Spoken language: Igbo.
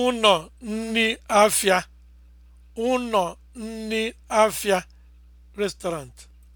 ụnọ nni afịa ụnọ nni afịa restaurant